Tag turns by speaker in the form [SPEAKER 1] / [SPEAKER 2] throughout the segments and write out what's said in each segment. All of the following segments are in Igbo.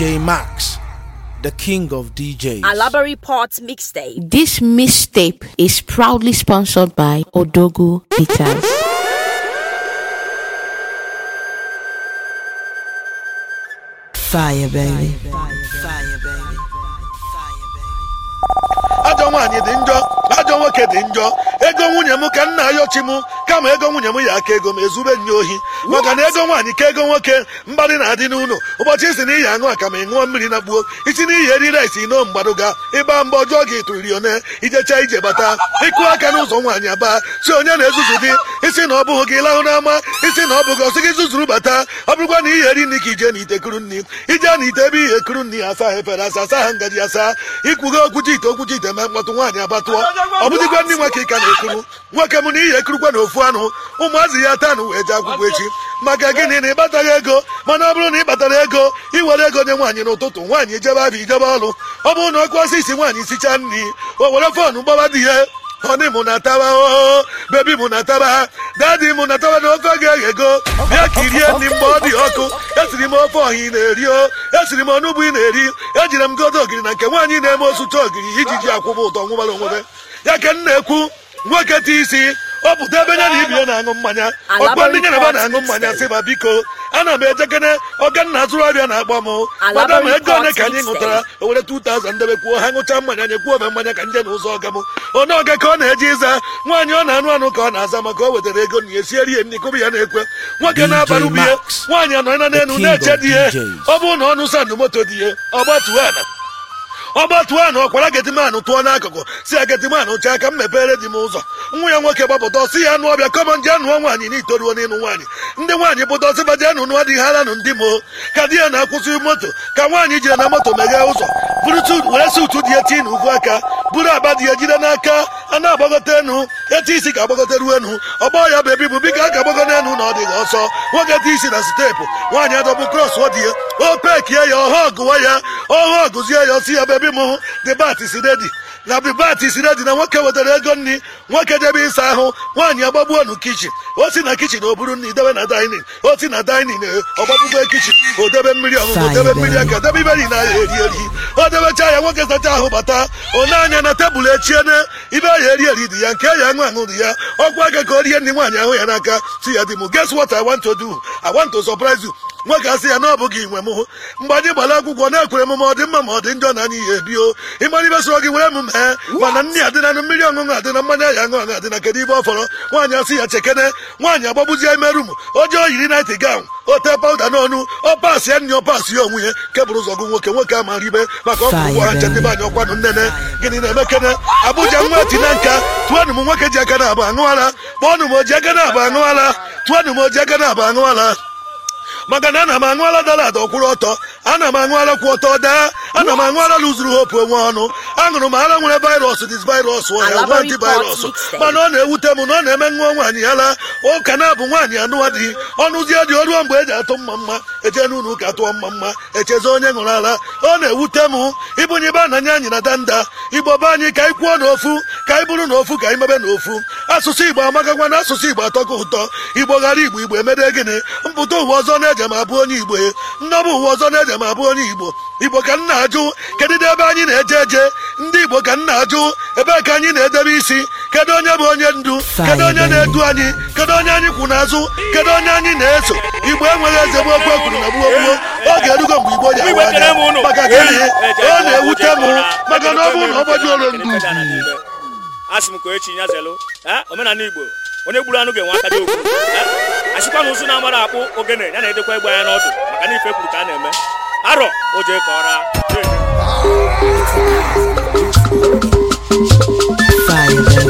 [SPEAKER 1] DJ Max, the king of DJs.
[SPEAKER 2] Alabari Port mixtape. This mixtape is proudly sponsored by odogo Guitars. Fire, baby. Fire, baby. Fire, baby.
[SPEAKER 1] Fire, baby. nwoke dị njọ ego nwunye m ka nna ayọchi m kama ego nwunye m ya aka ego m ezube nye ohi maka na ego nwaanyị ka ego nwoke mgbadị na-adị n'ụlọ ụbọchị isi na iyi aṅụ aka ma ị mmiri na gbuo isi na iyi eriri esi mgbadụ mgbaduga ịba mba ọjọọ gị tụririone ijecha ije bata ịkụ aka n'ụzọ nwaanyị aba si onye na-ezuzu dị isi na ọ bụghị gị lahụ n'ama isi na ọ bụghị ọsị gị zuzuru bata ọ bụrụkwa na iyi eri nri ka ije na ite kuru nri ije na ite ebe ihe ekuru nri asa efere asa asa ha ngaji asa ikwugo okwuchi ite okwuchi ite ma mkpọtụ nwaanyị abatụọ ọbụdịkwa ndị nwa ka ka na-ekuru nwoke m na ihe ekurukwa na ofu anụ ụmụazị ya taa na wee jee akwụkwọ echi maka gịnị na ịbataghị ego mana ọ bụrụ na ị batara ego iwere ego nye nwaanyị n'ụtụtụ nwaanyị ijebe abịa ijebe ọrụ ọ bụrụ na ọkụ ọsọ isi nwaanyị sichaa nri o were fọnụ gbawa di ya honey mụ na taba oo oh, oh, oh, bebi mụ na taba dadi mụ na taba na ofe ga-eghe ego bịa kirie nri mgbe ọ dị ọkụ esiri m ofe ọha ị na-eri o esiri m ọnụgbu ị na-eri ejire m godo ogiri na nke nwaanyị na-eme osucha ogiri iji ji akwụba ụtọ nwụbara onwebe ya ka m na-ekwu nwoke ti isi ọ pụta ebe ya na ibi ya na-aṅụ mmanya ọkpọ ndị nyere na na-aṅụ mmanya sị ma biko ana m ejekene ọganna azụrụ ọrịa na-agba m mada ma ego ole ka anyị ṅụtara owere were 2000 debe kwuo ha ṅụcha mmanya anyị kwuo ome mmanya ka nje na ụzọ ọga m onye ọga ka ọ na-eje ịza nwaanyị ọ na-anụ anụ ka ọ na-aza maka o wetara ego na esieri ya nri kụbụ ya na-ekwe nwoke na-abara ubi ya nwaanyị anọ na n'elu na-eche di ihe ọ bụ na ọnụ sandụ moto di ihe ọ gbatuo ala ọgbatụọ anụ ọkwara getimanụ tụọ n'akụkụ si ya getimanụ chee aka m mepere di m ụzọ nwa ya nwoke gbapụta ọsị ya anụ ọbịa kọmọn ndị anụọ nwaanyị n'itoruo n'ịnụ nwaanyị ndị nwaanyị pụta ọsị baji anụ nụọ dị haranụ ndị moo ka di ya na-akwụsị moto ka nwaanyị jiri na moto meghee ụzọ bụrụtụ wee si ụtụ dị eti na n'ukwu aka buru agba dị ya jide n'aka a na agbagote enu eti isi ga agbagote ruo enu ọgbọ ya bụ ebibu biko a ka agbagọta enu na ọ dịghị ọsọ nwoke eti isi na steepu nwaanyị adọbụ krọs ọ dị ya o pekie ya ọha ọgụwa ya ọha ọgụzie ya ọsị ya bụ bi mu the bat is ready na bibat isiri dị na nwoke wetara ego nri nwoke debe ịsa ahụ nwaanyị agbagbuo nụ kichin o si na kichin o buru nri debe na dainin o si na dainin ọgbagbugo kichin o debe mmiri ọṅụṅụ debe mmiri aka debe iberi na eri eri o debecha ya nwoke sacha ahụ bata one anya na tebụl na ibe ya eri eri dị ya nke ya aṅụ aṅụ dị ya ọkwa aka ka o rie nri nwaanyị ahụ ya n'aka si ya dị m guess what I want to do I want to surprise you nwoke asị ya na ọ bụghị inwe m mgbe anyị gbara akwụkwọ na-ekwere m ma ọ dị mma ma ọ dị njọ na ihe ebio ịmara ibe soro gị were m ee mana nri adị na mmiri ọṅụṅụ adị na mmanya ya aṅụ adị na kedu ibe ọ fọrọ nwaanyị asị ya chekene nwaanyị agbagbuzie ime rum ojeo yiri naịtị gawn ote pawụda n'ọnụ ọ pasị ya nri ọ pasị ya onwunye ya kebụrụ ụzọ gụ nwoke nwoke a mara ibe maka ọkụ gwara nchedebe anyị ọkwanụ nnene gịnị na-eme kene abụja nwa tina nka tụọnụ m nwoke ji aka na abụ aṅụ ara kpọọnụ m oji aka na abụ aṅụ ara tụọnụ m oji aka na abụ aṅụ maka na ana m aṅụala dọla dọkwụrụ ọtọ ana m aṅụala kwụ ọtọ daa ana m aṅụala lụzuru hopu onwe ọnụ aṅụrụ m ara nwere virus dis virus ọhịa antivirus mana ọ na-ewute m na ọ na-eme nwa nwaanyị yala ụka na-abụ nwaanyị anụwa dị, ọnụzie dị ọrụ mgbe eji atụ mma mma eche n'ụlọ ụka atụọ mma mma echezi onye ṅụrụ ara ọ na-ewute m ịbụnye ibe ananya anyị na danda igbo be anyị ka anyị kwuo n'ofu ka anyị bụrụ n'ofu ka anyị mebe n'ofu asụsụ igbo amagakwa na asụsụ igbo atọkọ ụtọ igbo ghara igbo igbo emede gịnị mpụta ụwa ọzọ na-eje ma abụ onye igbo e. nnọbụ ụwa ọzọ na-eje ma abụ onye igbo igbo ka nna ajụ kedụ ebe anyị na-eje eje ndị igbo ka nna ajụ ebee ka anyị na-edebe isi kedu onye bụ onye ndu kedu onye na-edu anyị kedu onye anyị kwụ n'azụ kedu onye anyị na-eso igbo enweghị eze bụ okwu ekwuru na gbuo gbuo oge erugo mgbe igbo ji awa anya maka gịnị e ọ na-ewute m maka na ọ bụrụ na ọ gbaji olu ndu
[SPEAKER 2] onye gburu anụ ga-enwe aka dị okwu asịkwa na ụzụ na-amara akpụ ogene ya na-edekwa egbe anya n'ọdụ maka na ife kwuru ka a na-eme arọ o jee ka ọra Fire,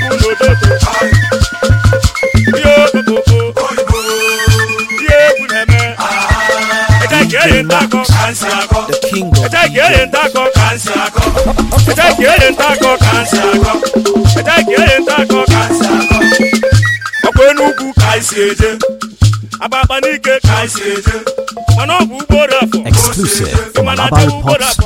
[SPEAKER 2] Max, the king of enugwu ka anyị n'ike ka eje bụ ugboro afọ mana ugboro afọ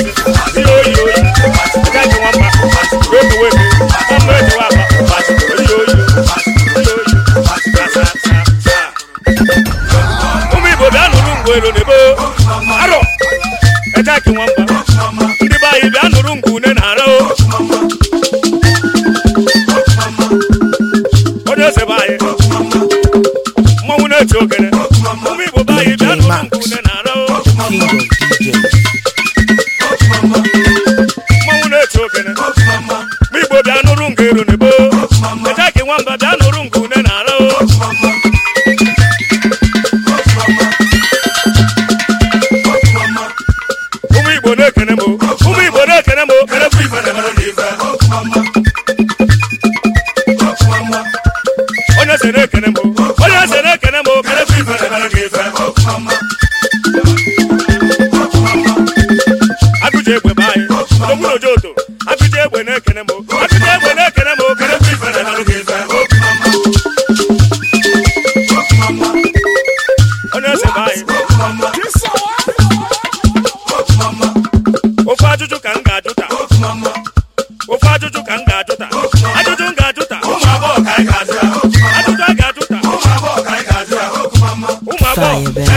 [SPEAKER 2] fire, baby.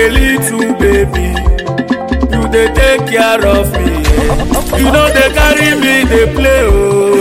[SPEAKER 2] a little baby you dey take care of me you no dey carry me dey play ooo oh.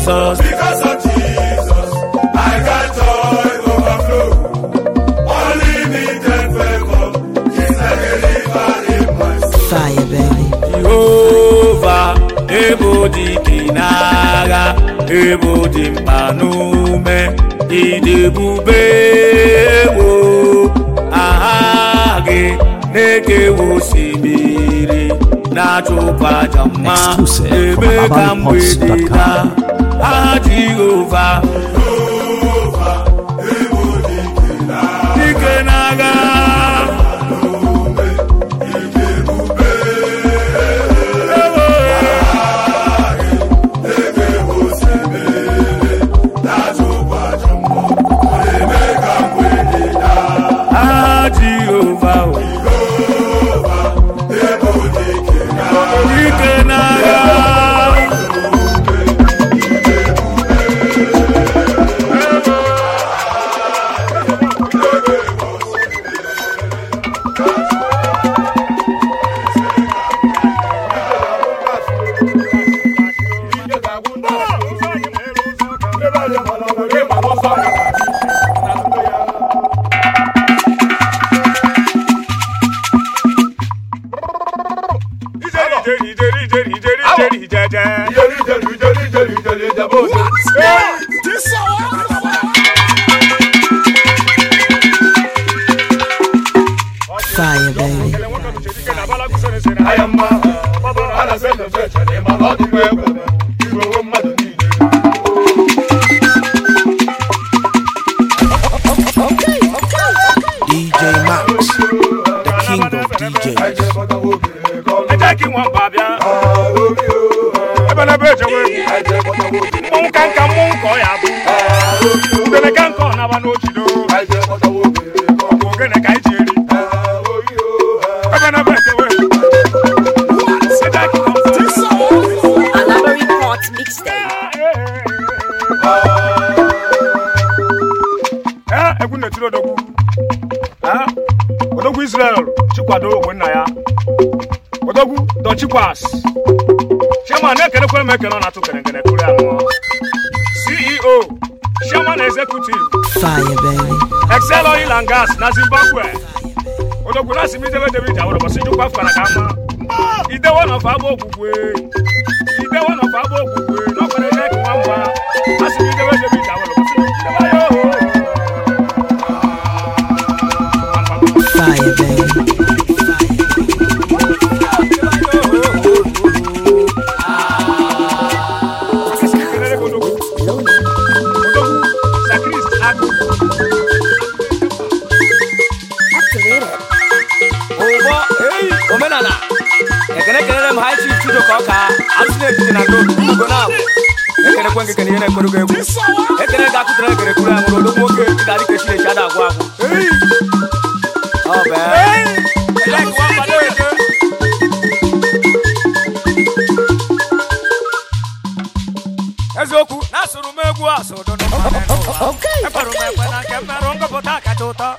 [SPEAKER 2] Jesus. Because of oh Jesus, I got joy overflow. Unlimited favor is like a river in my soul. Fire, baby. Jehovah, ebo di kinaga, ebo di mpanume, idebube wo, aha gị na-ekewe osimiri. na-achụkwa mma ebe ka mgbede daa aha Jehova ìjẹ́rìí ìjẹ́rìí ìjẹ́rìí ìjẹ́rìí ìjẹ́rìí ìjẹ́jẹ́. Omekena ọ na-atụ kerekere tụrụ ya CEO Chairman Executive Excel Oil and Gas na Zimbabwe odogwu na simidebe David awụrọbọsi jụkwa fara ka ama idewe na ọfa agba ogwugwe kele kelele m ha chi chudo ka na-ejide na na abụ ekenekwe nke kenye na-ekwerugo egwu ekene ga-akụtara ga ka echinechi ada agwụ agwụ eziokwu na-asụrụ m egwu asụ n'ụwa m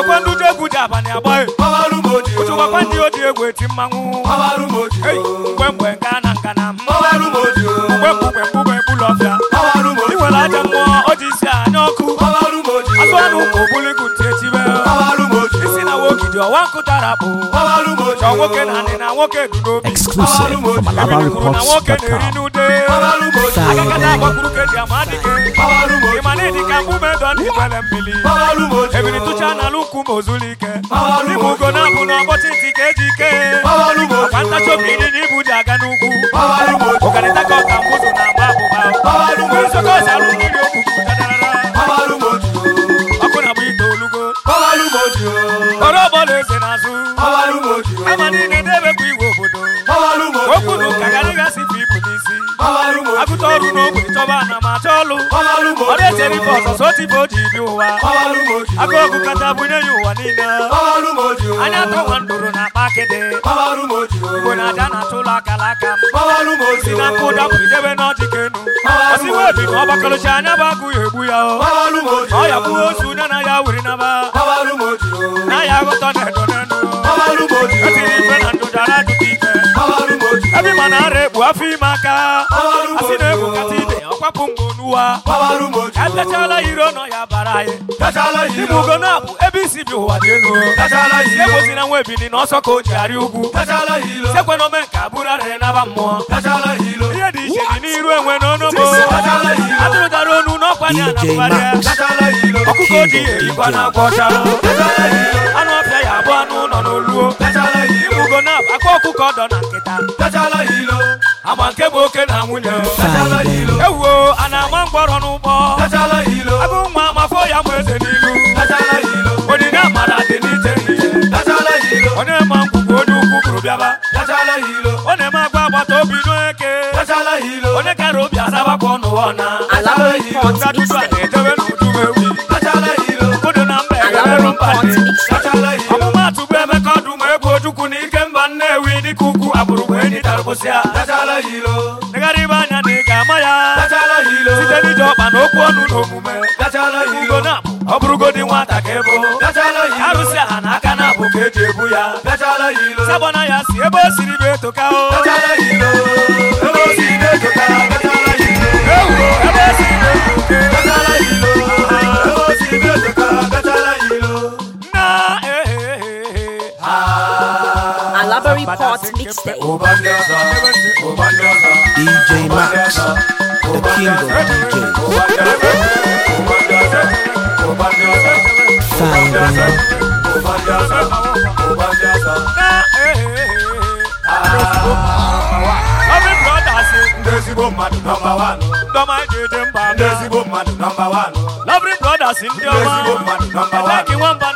[SPEAKER 2] ochekwa ndị egwu ji abalị agbaghị ochekwa ndị oji egwu eti mmanwụ mgbe mgbe nke a na nka na mgbe mgbe mgbe ị nwere aja mmụọ o ji isi anya ọkụ azụ anụ ụmụ obuligut ọwankụ dara nwoke na anị na nwoke dị n'obi na nwoke na-eri n'ude agagada agbakwuru ka ka mbume dọ ndị dị ebiri tụcha ịbụ ugo na-abụ na ntị ka eji ike akpa ntachi ji aga n'ugwu na ọrụ n'ogbe chọba na ma achọ ọlụ ọ na-echere ife ọzọ sotibe o ji bi ụwa aka ogu kata bunye ya ụwa niile anya atọ nwa ndụrụ na akpa akịdị igbo na aja na achọ ụlọ akara aka m si na mkpụ dapụidebe n'ọjị ka enu osiwe obi na ọgbakọlụchi anya bụ agụ ya egbu ya ọ ya bụghị osu onye na ya were naba na ya aghọta e na edo n'enu o tiri ife na ndụ dara ajụta ike ebe ma na bu ekpu afọ ime aka asị na-egbu kata ibe ọkwapụ mgbe n'ụwa etechala iro nọ ya bara anyị ibu ugo na-abụ ebe isi bi ụwa dị elu ebozina nwa ebili na ọsọ ka o ji arị ugwu sekwe na ome nke abụrarịrị naba mmụọ ihe dị iche dị n'iru enwe n'ọnụbo atụrụtara onu n'ọkwa ya na mgbarịa ọkụkọ dị eyikwa na akwa ọcha anụ ọfịa ya abụ anụ ụlọ n'oluo ibugo na-abụ aka ọkụkọ dọ na nkịta agba nke bụ oke na nwunye ewuo a na-ama mgbọrọ n'ụgbọ sabana ya si ebe na-etoka o siri na-etoka Alabari e, e, e, Mixtape
[SPEAKER 1] DJ Max,
[SPEAKER 2] the king of ndị Ah ah ah ah ah ah ah. nwamba na obido mara ụmụ mmadụ nọmba mmadụ nọmba na mmadụ nọmba mmadụ nọmba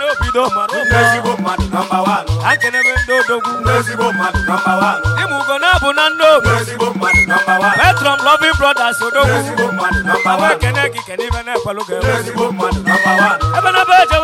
[SPEAKER 2] na mmadụ nọmba Ebe na-ebe ejewe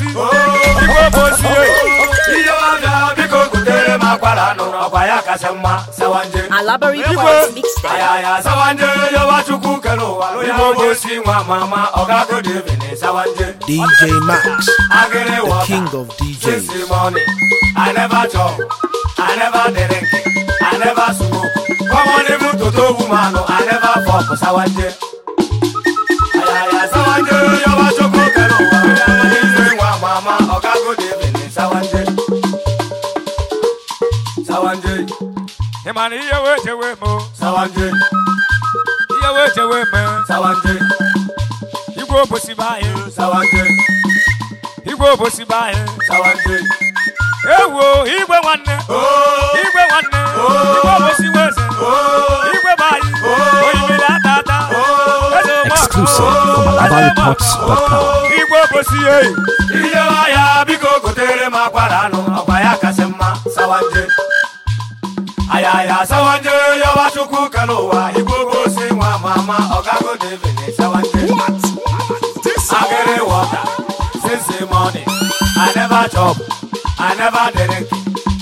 [SPEAKER 2] osi igwe bụ osi ihe ọbịa biko gotere ọkwa ya kasị mma sawanje ayaya sawanje yọba chukwu kere ụwa ya bụ si nwa mama ọgago dvin sawanje DJ Max the king of DJs I never I never I never smoke I never sawanje mana ihe wee chewe m sawanje ihe wee chewe sawanje igwe obosi be e. igwe obosi be anyị sawanje ewo igwe nwanne igwe nwanne igwe obosi weze igwe be ata ata ooo, ooo, ooo, ooo, obosi eyi ijewa ya biko gotere m akwara anụ akwa ya kasị mma sawanje ayaya sawanje yawachukwu kanowa si nwa mama ọgago devin sawanje agere water since morning i never chop i never drink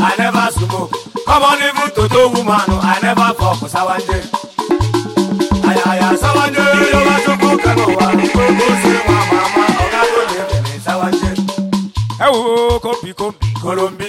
[SPEAKER 2] i never smoke come on even toto woman i never fuck sawanje ayaya sawanje yawachukwu kanowa igbogosi nwa mama ọgago devin sawanje ewo kombi kombi kolombi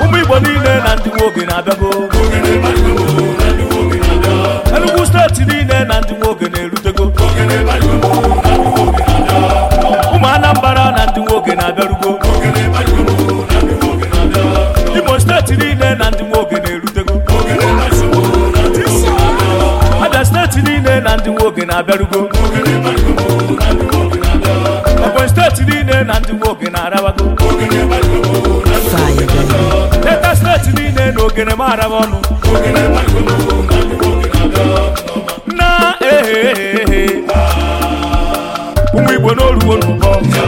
[SPEAKER 2] ụmụ igbo niile na ndị nwoke na-abịago enugwu steeti niile na ndị nwoke na-erutego ụmụ Anambara na ndị nwoke na-abịarugo imo steeti niile na ndị nwoke na-erutego abịa steeti niile na ndị nwoke na-abịarugo leta steeti niile na ogene eh, mara m ọnụ na ehe eh, eh. ụmụ igbo n'oluwo n'ụbọ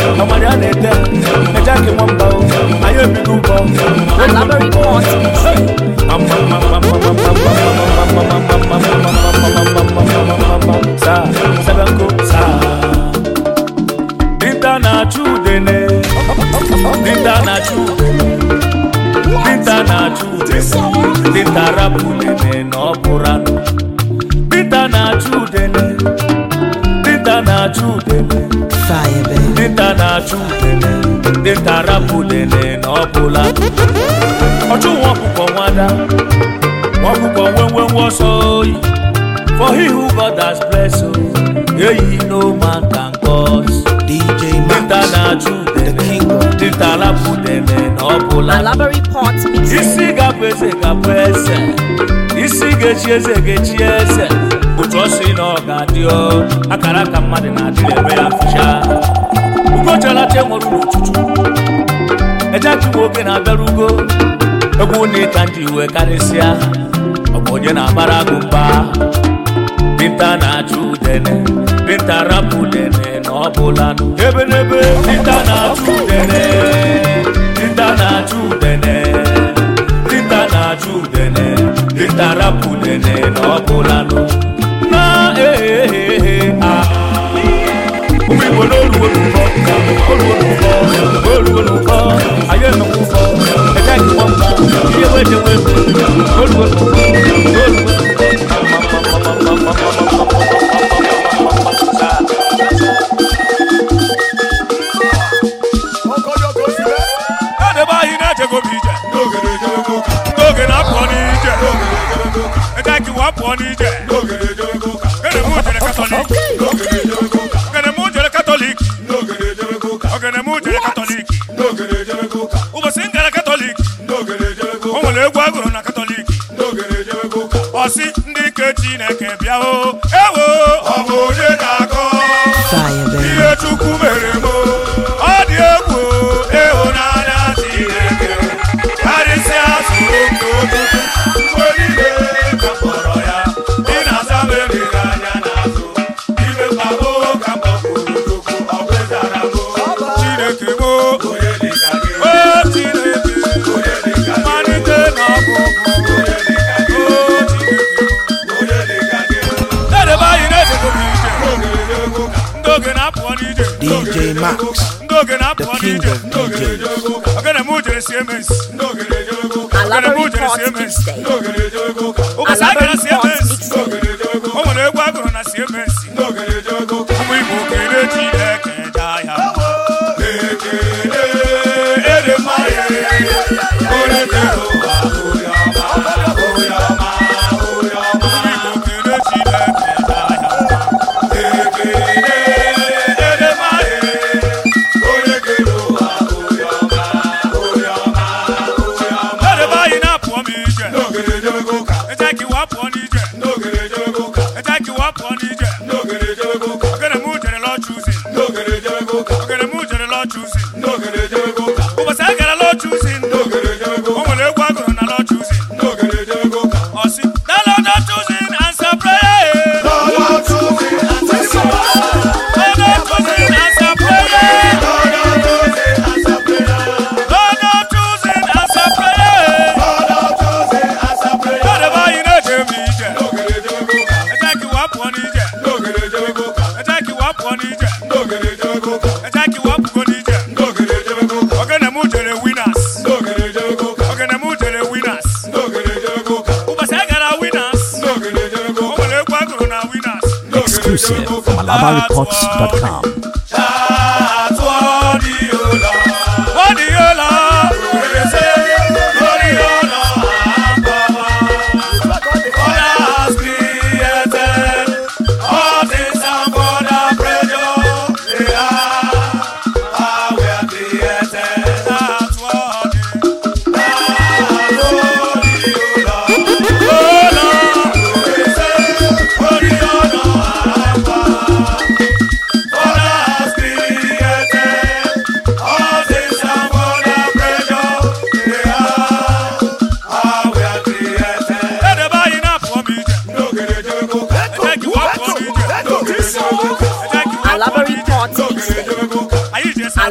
[SPEAKER 2] ọmọdé á na-ete ẹja kí wọ́n bá o ayé òbí ló bọ̀ ó ní bọ̀ saa sẹ́bẹ̀kó saa. na chudene, dinta na na dinta Dinta na dinta na Ndị nta na-achụ udele dinta rapụ udele na ọbụla ọchụnwa ọkụkọ nwada ọkụkọ nwenwenwe ọsọ oyi for he who God has blessed oh, eyi no man can cause DJ nta na-achụ udele dinta rapụ udele na ọbụla isi gabụ eze gabụ eze isi ga-echi eze ga-echi eze otu ọsọ ị na ọ ga-adị akara ka mmadụ na-adịrị eme ya fụcha ugochalacha nwere n'ụtụtụ ejeaki nwoke na-abịara ugo egwu na ịta ndị iwe karịsịa ọ bụ onye na-abara agụ mba dinta na-achụ udene dinta rapụ udene na ọ bụla ebe n'ebe dinta na-achụ udene dinta na-achụ udene ọbụlanụ na ee ụmụ igbo n'oluwo n'ụkọ oluwo n'ụkọ oluwo n'ụkọ anyị enwekwa ụkọ ejeghị mgbọmba ihe bịa na-apụ n'ije ogene m jere si emesi ogene m jere cms BabaRecords.com.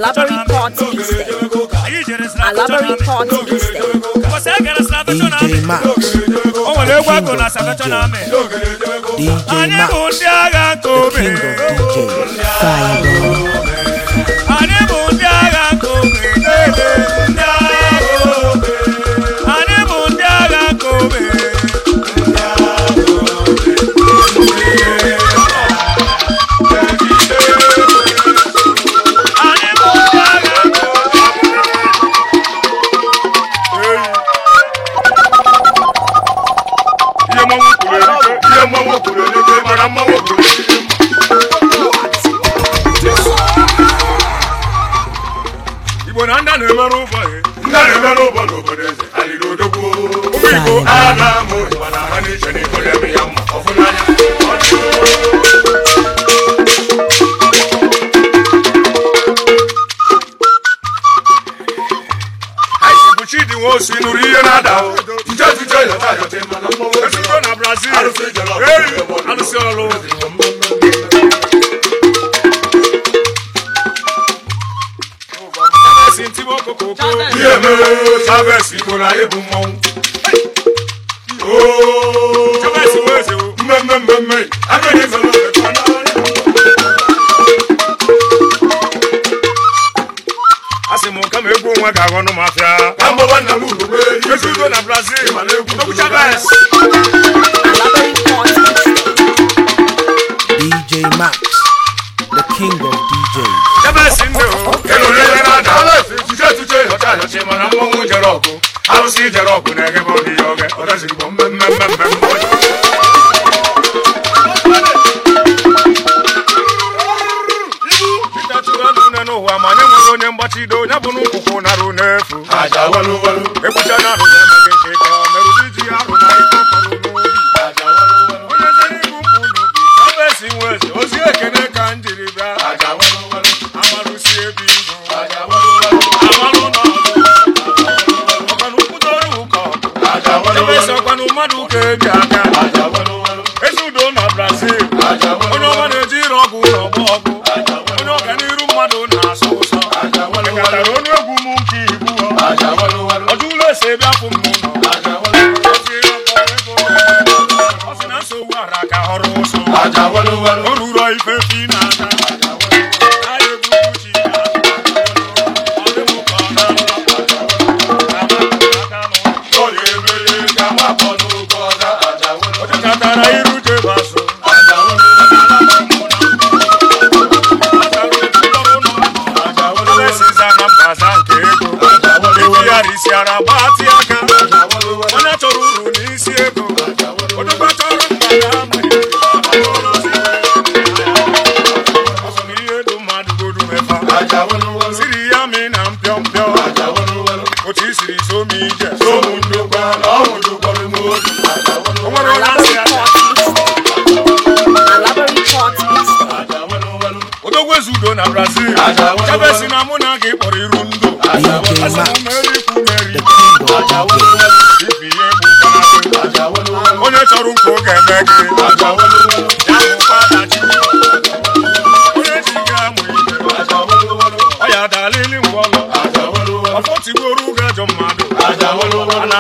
[SPEAKER 2] elaborate party mistake. Elaborate na mistake. DJ Max. Oh, DJ Max. The king of DJ. ihe mere chaves igbo na ịbụ mmọnwụ mmemme mmemme agaghị a sị m ma egwu onwe ga-aghọ na ọdachi mana mmanwụ jere ọkụ arụsị jere ọkụ na-egebe ọdị ya oge ọdachi bụ mmemme mmemme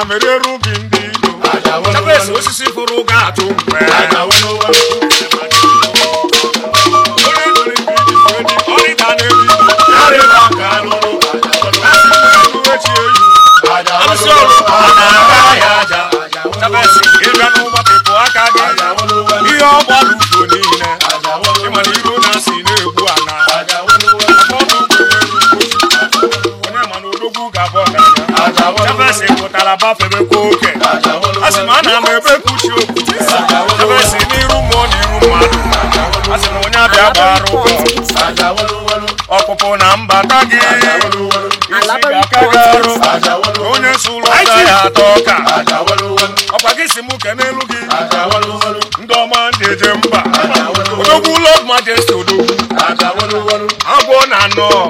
[SPEAKER 2] mere ru no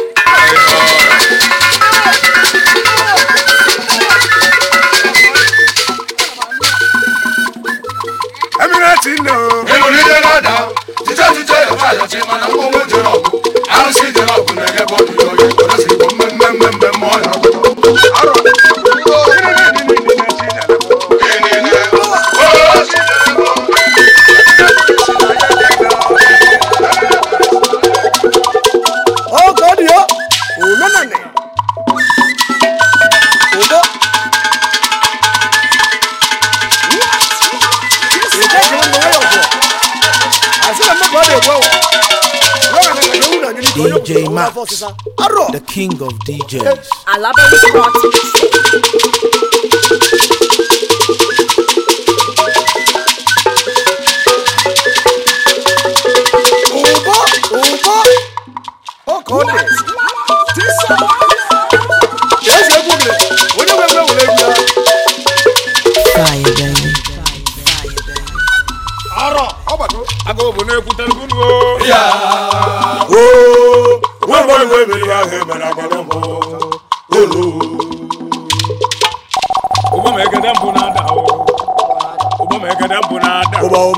[SPEAKER 2] Max, the
[SPEAKER 1] king of DJs.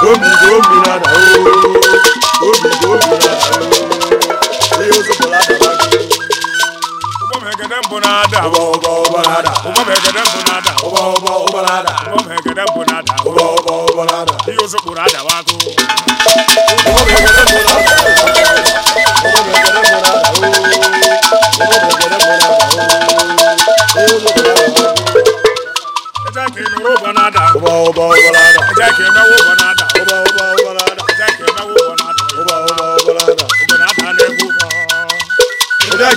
[SPEAKER 2] obi dị obi na-ada oh. obi dị obi na-ada ihe oh. ozopụla adaba gị ubamhekedembonada uba uba ubalada ubamhekedembonada uba uba ubalada ubamhekedembonada uba uba ubalada ihe ozopụrụ adaba n'o ubamhekedembonada ubamhekedembonada uba uba ubalada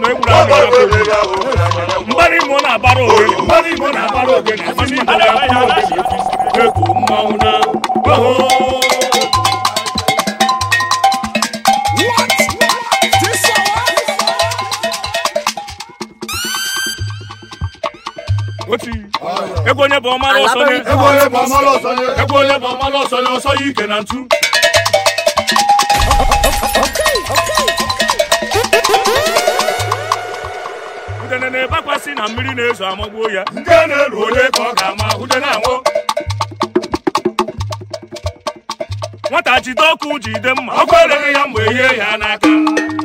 [SPEAKER 2] mgbara imo na-abara na-abara na na onye bụ ọmara ọsọ na ọsọ na udene na-ebakwasị na mmiri na-ezo amagbuo ya nke na elu onye ka ọ ga-ama ude na anwụ nwata jide ọkụ jide mma ọkụ eleghị ya mgbe ihe ya n'aka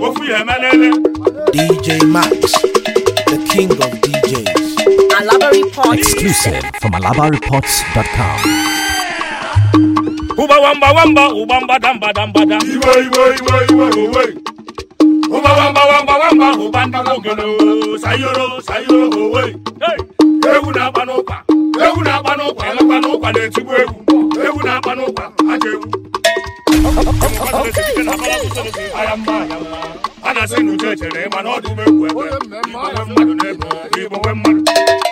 [SPEAKER 2] ofu ya emelele DJ Max the king of DJs Alaba Reports exclusive from alabareports.com ụgbawa mgba wamba ụgba mbadambadambada iwe iwe iwe iwe iwe nwamba nwamba nwamba nwamba ahụ gbantara sayoro sayoro owe ewu na-agba n'ụkwa ewu na n'ụkwa na-etigbu ewu ewu na n'ụkwa aja a na-asị na ịma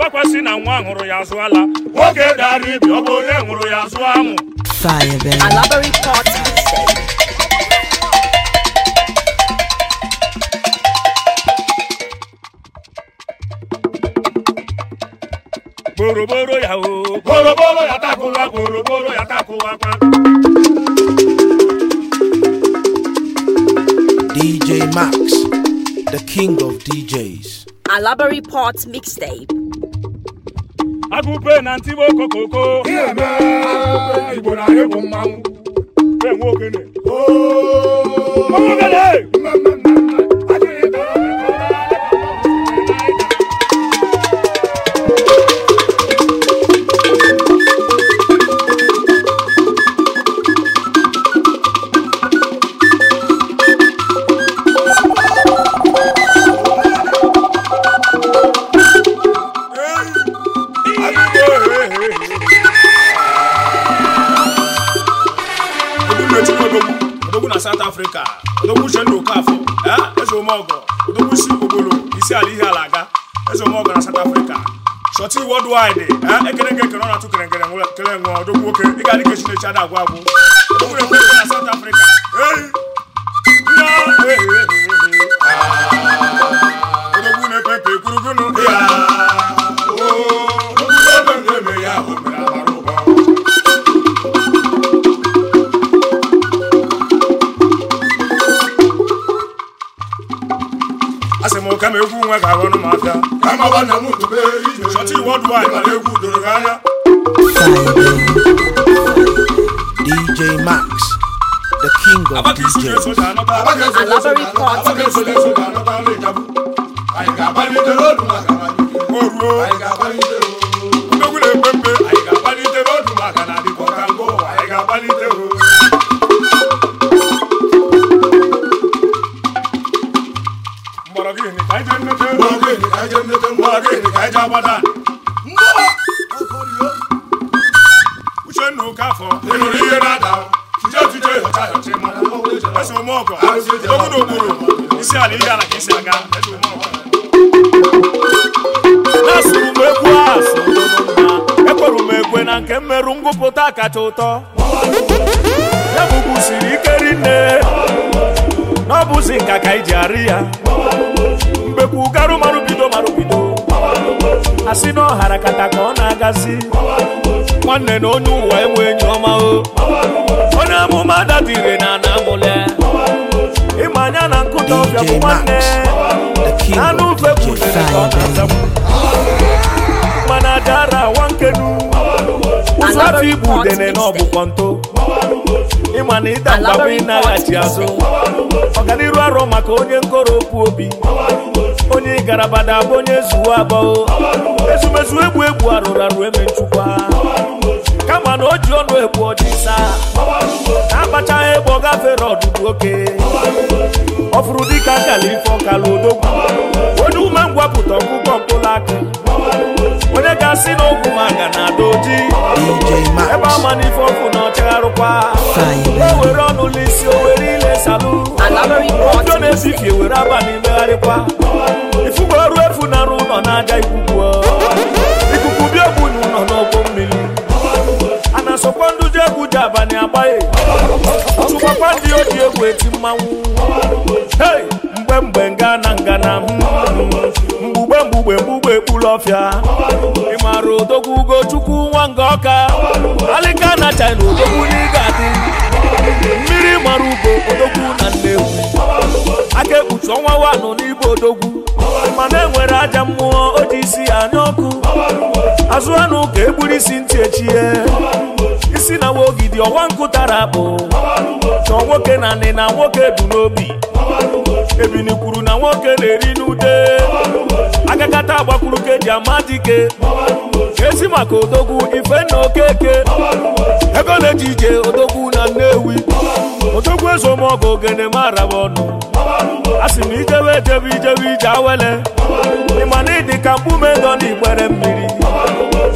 [SPEAKER 2] oge na nwa hụrụ ya azụ ala oge dara ibi ọ bụ onye hụrụ ya azụ anwụ gboroboro ya o gboroboro ya takụwa gboroboro ya takụwa kwa
[SPEAKER 1] DJ Max, the king of DJs.
[SPEAKER 2] Alabari Port Mixtape. agụbe na ntibe okokoko igbo na-egbu mmanwụ enwe ogene ogene worldwide ekere eh? eh, nke ekere ọ na-atụ kere nkere kere nwe ọdụ nwoke ga-adị ka Chineke agwụ agwụ o nwere na South Africa ah! na-epepe shorty worldwide mara egwu doro
[SPEAKER 1] gị DJ Max, the king of DJs.
[SPEAKER 2] agbada uchenna ụkafọ ịnụrụ na m na nke mmerụ ngwụpụta kacha ụtọ ya ike rinne n'ọbụzi ka iji arị ya mgbekwu asị na ọhara kata ka ọ na-agazi nwanne na onye ụwa enwe enyi ọma o onye amụma datire na ana amụle ịma anya na nkụta ọbịa bụ nwanne na anụ ufe kwụnyere ka ọ na-azakwu mana dara nwa nkenu
[SPEAKER 1] ụzọ afọ igbu udene na ọbụkọ
[SPEAKER 2] nto ịma na ịda mgbagbo ịnaghachi azụ ọganiru arụ maka onye nkoro okwu obi onye garabada bụ onye zuo abụọ ezumezu egbu egbu arụrụ arụ eme nchukwa kama na o ji ọnụ egbu ọchịsa na-akpachaghị egbe ọ gafere ọdụdụ oke ọ fụrụ dịka nkala ife ọkala odogwu onye ume ngwapụta ọkụkọ mkpụrụ akụ onye ga-asị na ogwu maga na ada oji e ebe ama n'ife ọkụ na ọchagharụkwa o were ọnụ n'isi o were na-esalụ odo na-ezifie were abalị megharịkwa ifugo efu na arụ ụlọ na-aja ikwukwu ikuku bi egwu na ụlọ n'ọgbọ mmiri a na-asọkwa ndụ ji egwu ji abalị agbaghị ndị oji egwu eti mmanwụ hei mgbe mgbe nga na ngana mgbugbe mgbugbe mgbugbe ekpuru ọfịa ị maara odogwu ugochukwu nwa nga ọka alịka na china odogwu n'ịga adị mmiri mara ugo nwa wanụ n'igbo odogwu mana enwere aja mmụọ o ji isi anya ọkụ azụ anụ ka egburu isi ntị echie isi na nwaogidi ọwa nkụ tara akpụ chọọ nwoke na nị na nwoke bu n'obi ebini kwuru na nwoke na-eri n'ute. agakata agbakwuru ka e ama dike ezi maka odogwu ife na okeke ego na-eji ije odogwu na nnewi otokwu eze ụmụọkụ ogene mara bụ ọnụ a sị m ijewe ejebe ijebe ije awele ịma na ịdị ka mkpume dọ na igbere mmiri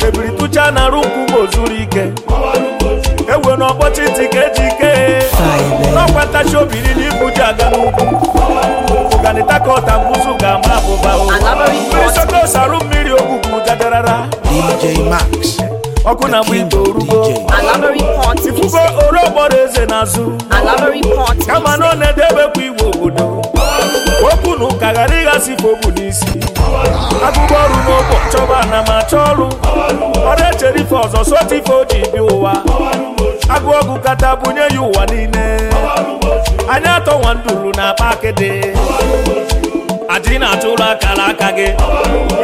[SPEAKER 2] chebiri tụcha na arụ nkwụ zuru ike ewe na ọkpọchi ntị ka eji ike n'ọkwa ntachi obi niile ibuji aga n'ugwu ọganịta ka ọta mbụzụ ga-ama abụba mmiri sokosarụ mmiri ogwugwu gadarara ọkụ na mgbe igbo rugo ifufe oro gbọrọ eze n'azụ kama na ọ na-edebekwa igwe obodo okwu na ụka ghara ịghasị fobu n'isi agụgụ ọrụ n'ụbọ chọba na ma achọ ọrụ ọrụ echere ife ọzọ sọta ife o ji bi ụwa agụ ọgụ kata bunye ya ụwa niile anya atọ nwa nduru na akpa akịdị adị na-atụrụ akara aka gị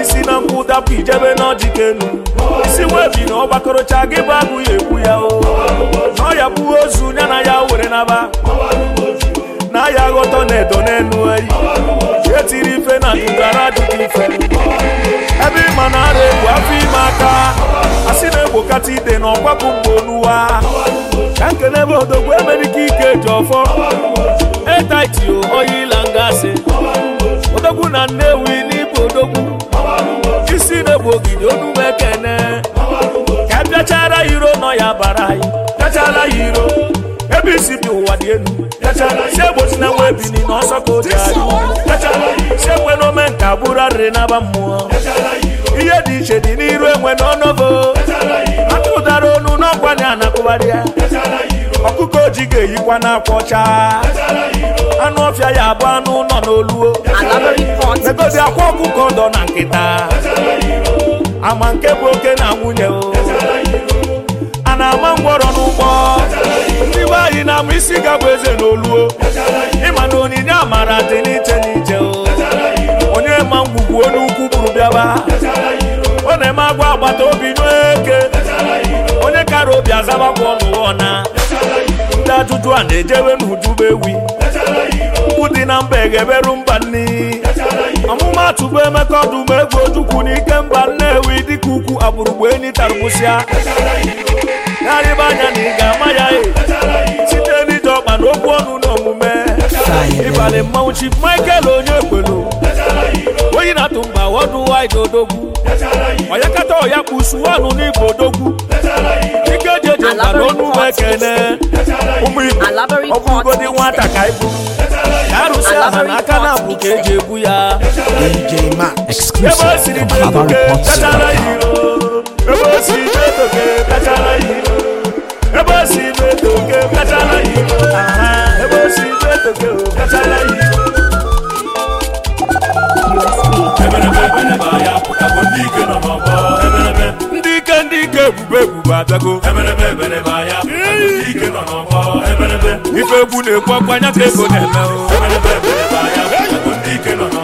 [SPEAKER 2] isi na nkwụ dapụ ijebe n'ọjikenu isi webi na ọgbakọrọcha gị bụ abụghị ekwu ya na ọ bụ ozu ya na ya were naba na ya ghọtọ na edo n'elu eyi etiri ife na ndụdara adịghị ife ebe ịma na ara egwu afọ ime aka asị na-egbokata ide na ọkwapụ mgbe onuwa e ka na Nnewi n'Igbo Odogwu isi na-egbu ogige onuwu ekene ka e bịachara iro nọ ya bara anyị bịachara iro ebe isi bi ụwa dị elu segbochi na nwa bi na ọsọ ka oji adị segbe na ome nka bụrụ arịrị n'aba mmụọ ihe dị iche dị n'iru enwe n'ọnụgo aka ụdara onu n'ọkwa na anakụgharị ya ọkụkọ oji ga-eyikwa n'akwa ọcha anụ ọfịa ya abụ anụ nọ n'oluo megodi akwa ọkụkọ dọ na nkịta ama nke bụ oke na nwunye o a na-ama ngwọrọ n'ụgbọ ndị be anyị na-ama isi gabụ eze n'oluo ịma na onyinye amara dị n'iche n'iche o onye ma ngwugwu onye ukwu bụrụ bịaba ọ na-eme agwa agbata obi eke akara obi azabakwa ọnụwọ na ndị ajụjụ a na-ejewe n'ujuba ewi dị na mba egeberu mba nni ọmụma tụgbu emeka ọdụmegwu ojukwu n'ike mba nnewi dịka ukwu agbụrụgbu enyi tarụgbusịa narịba anya na ịga, ga-ama ya e. site n'ije ọkpa na okwu ọnụ na omume ịbalị mmanwụ Michael onye kpelu onye na-atụmba wọdụwaịd odogwu onye kata ọya kpusu ọnụ n'igbo odogwu ike eji eje mba n'onu uwe ekene ụmụ nwata ka ibu arụsị aha na abụ ka eji ebu ya ebe e siri jeetoke bechara ebe e siri ya ebube ebube abịago ife egwu na-ekwu ọkwa anya ka ego na-eme oh.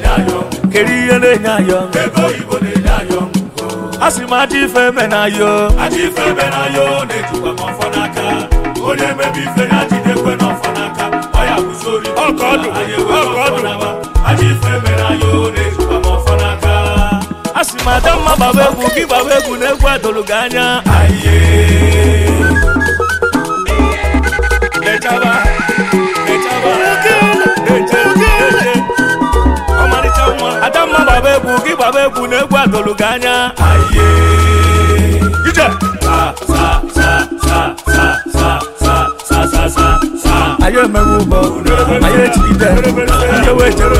[SPEAKER 2] kedu ihe na-enye anyị ọṅụ ebe oyibo na-enye anyị ọṅụ a sị m ajọ ife eme na yo ajọ ife eme na yo na-ejikwa m ọfọ n'aka onye emebe ife ya jidekwe n'ọfọ n'aka ọ ya kụzori ọkọdụ ọkọdụ ajọ ife eme na yo na-ejikwa m ọfọ n'aka a sị m ada mma gbaba egwu gị gbaba egwu na egwu adụrụ gị anya aye lechaba lechaba egwu gị gbaba egwu na egwu adolu gị anya anyị emewe ụgbọ anyị ejigide ndị wee chere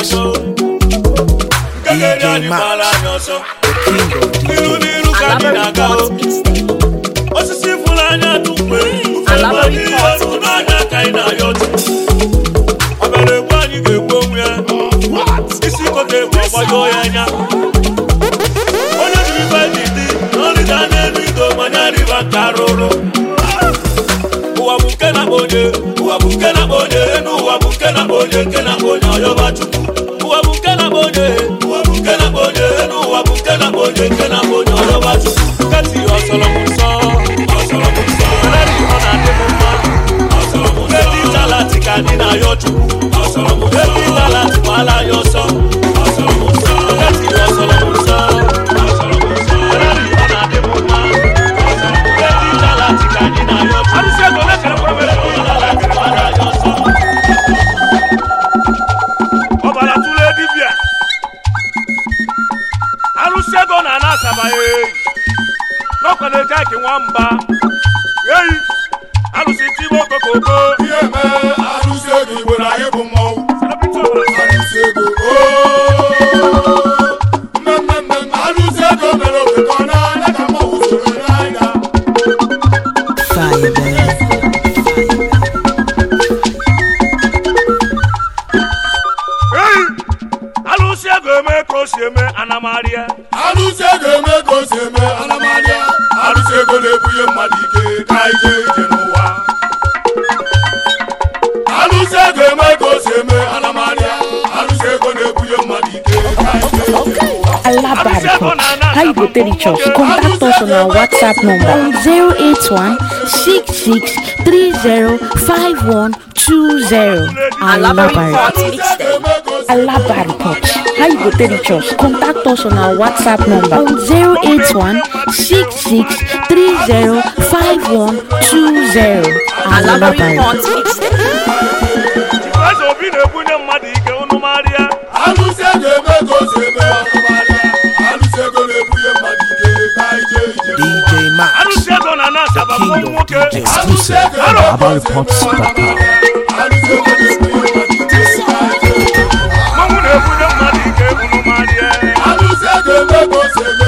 [SPEAKER 2] yanṣọ. Gẹ́gẹ́ bí àdìpàlà yanṣọ. Nínú nínú kàdínà ká o. Osisi Fulani anya Ufe gbani ọdún náà ní anyị yọtú. Ọ̀bẹ̀rẹ̀ gbani gbègbó mu yẹn. Isi kòtè pọ̀pọ̀ yóò ya yá. Onye dị bá dìde, lórí dáná ẹnu ìgò mọ̀nyá rí Ụwa bụ nke na onye, ụwa bụ nke na-akpọ onye, enu ụwa bụ nke na-akpọ onye, nke na-akpọ onye ọyọba chukwu. expenditures. Contact us on our WhatsApp number 081 how you go High Botery Church. Contact us on our WhatsApp number on 081 66305120. Alabari Pot. exclusive à abalpops.com. Mama na-ebunye mmadụ ike ebunu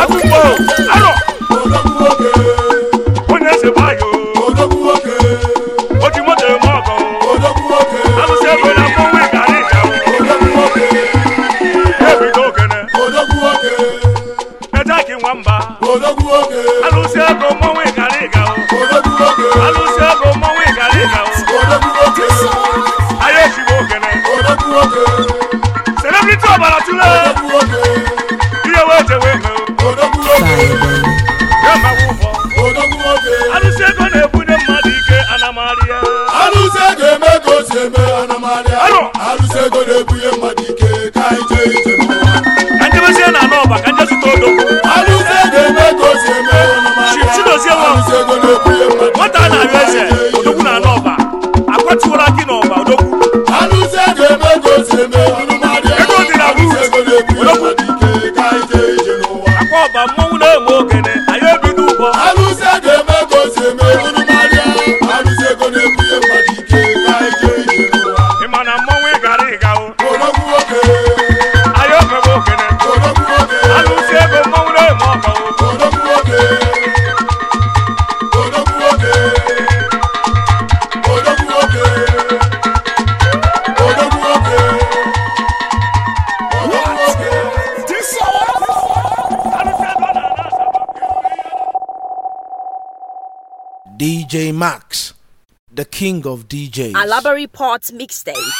[SPEAKER 2] akwụkwọ arọ
[SPEAKER 1] king of DJs. A library
[SPEAKER 2] mixtape.